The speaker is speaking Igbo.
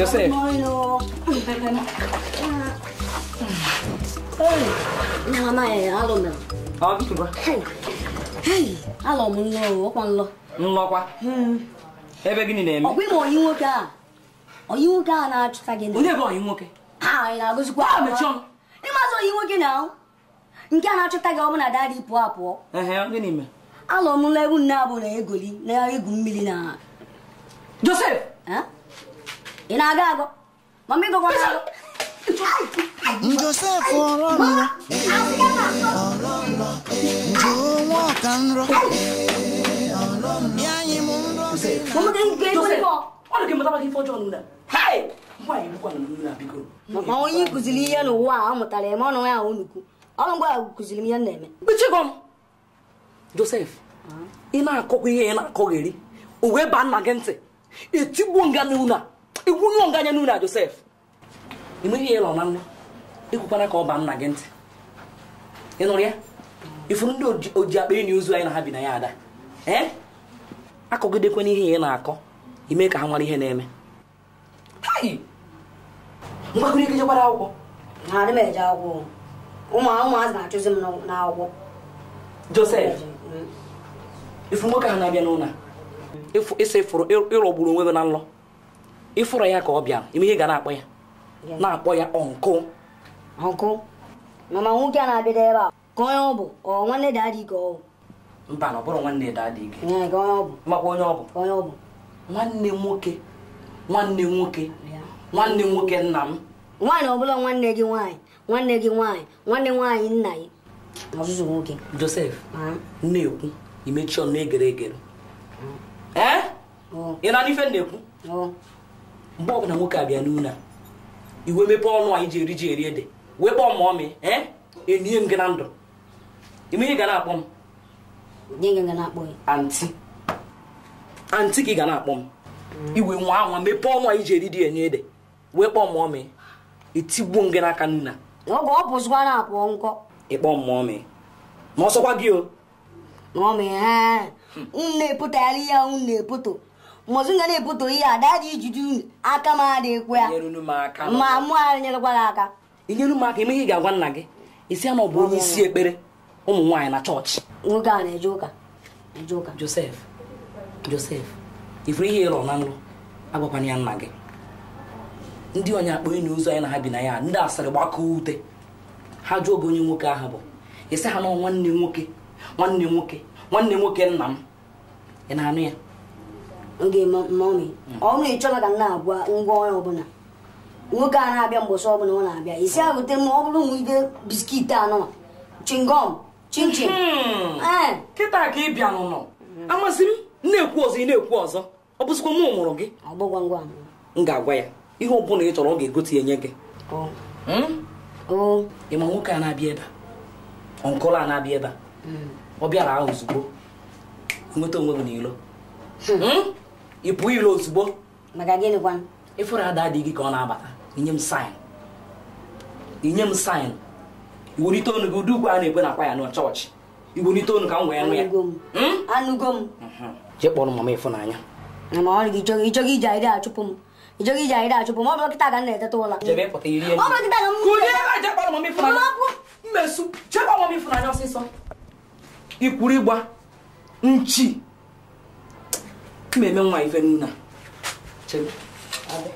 Josef. Namaye, Nlọkwa? Ebe gịnị na-eme? Ọ bụ onye nwoke a. nwoke a na-achụta gị. Onye bụ onye nwoke? ọhụrụ anyị na nwoke na nke a na-achụta gị ọbụna dadị pụọ apụọ. Ehe, gịnị nne abụ na egoli na egwu mmiri na. Josef! ị na-aga agụ mama ịgụkwa agụ nwa ọka nrọ anyị m nrọ ma onye kụziri ihe n'ụwa a ọ mụtara eme ọnụ ya unukwu ọnụ ngwa kụziri m ihe na-eme Josef ị na-akọkwa ihe ị na-akọ o wee baa nna gị ntị nga a igwunye nganya n'ụlọ na Josef enweghị ihe ịlọ na nwa ekwukwana ka ọ ba nna gị ntị ị nụrụ ya ifuru ndị oji akpa enyi ozu anyị na ha bi na ya ada ee akọgidekwana ihe ya na-akọ ime ka ha nwara ihe na-eme mgbakọrị ike jekwara akwụkwọ adị m eje akwụkwọ ụmụ ụmụazị na-achụzi m n'akwụkwọ Josef mm. ifu nwoke ha na-abịa n'ụlọ ịsa ịfụrụ ịrọgburu onwe gị na nlọ ịfụrụ ya ka ọ bịara ime ihe ga na-akpọ ya na-akpọ ya ọnkụ ọnkụ mana nwoke a na-abịada ebe a ka onye ọ bụ ọ nwanne daadị ka ọ mba na ọ bụrụ nwanne daadị gị makwa onye ọ bụ nwanne nwoke nwanne nwoke nwanne nwoke nna m nwaanyị ọbụla nwanne gị nwaanyị nwanne gị nwaanyị nwanne nwaanyị nna gị ọzụzụ nwoke josef na-ekwu imechi ọnụ egere egere ee ị na-adị ife na-ekwu mgbe ọbụla nwoke a bịa iwe mepe ọnụ anyị ji eri ji eri ede wee kpọọ ma ọmị enye eh? e, m gị na ndụ ime ihe ga na-akpọ m antị antị ka ị ga na-akpọ m mm. iwe nwa anwa mepee ọnụ anyị ji eri enye ede wee kpọọ ma ọmị etigbuo m gị n'aka ịkpọ mmụọ ọsọkwa gị o eh? hmm. na ya na-eputo mụzụ nga na-ebute oyi dị ijiji ijuju aka m adịghịkwa ya ma mụ anyị nyerekwara aka inyere m aka emeghị ị ga-agwa nna gị isi ama na onye isi ekpere ụmụ nwaanyị na chọọchị nwoke a na-eje ụka eje ụka josef josef ifuru ihe ịlọ na nlụ agwakwana ya nna gị ndị onye akpọ onye na ozu anyị na ha bi na ya ndị asịrị gbakọọ ute ha jụọ oge onye nwoke ahụ bụ ịsị ha na nwanne nwoke nwanne nwoke nwanne nwoke nna m ị na-anụ ya oge mọmi ọnụ ịchọla ka m na-agwa ngwa ọrụ ọbụla nwoke a na-abịa mbọsị ọbụla ọ na-abịa isi agụte m ọ bụrụ nwide biskit anọ chingom chinchin hmm. eh. kịta ka ị bịa nụnọ amasị m na-ekwu ọzọ ị na-ekwu ọzọ ọ bụzikwa mụ mụrụ gị m ga-agwa ya ihe ọ bụla ị chọrọ ọ ga-egote enye gị hmm? ịma nwoke a na-abịa ebe ọnkụlụ a na-abịa ebe hmm. ọ bịara ahụ ozugbo nweta onwe gị n'ilo ị pụọ ilo ozugbo ịfụrụ ada gị ka ọ na-abata inye m saịn inye m saịn iwelite onu gị ụdị ugwu a na-egbe ya n'ọ chọọchị iwelite onu ka m wee ya anụgo hmm? m mhm. jee mama ịfụnanya ịchọghị iji achụpụ m ịchọghị iji aịdị achụpụ m ọ bụrụ kịta ka m na-eteta ụla mmesu mama ịfụnanya ọsịsọ ikwuru ịgba nchi meme nwa về nè, à? chebe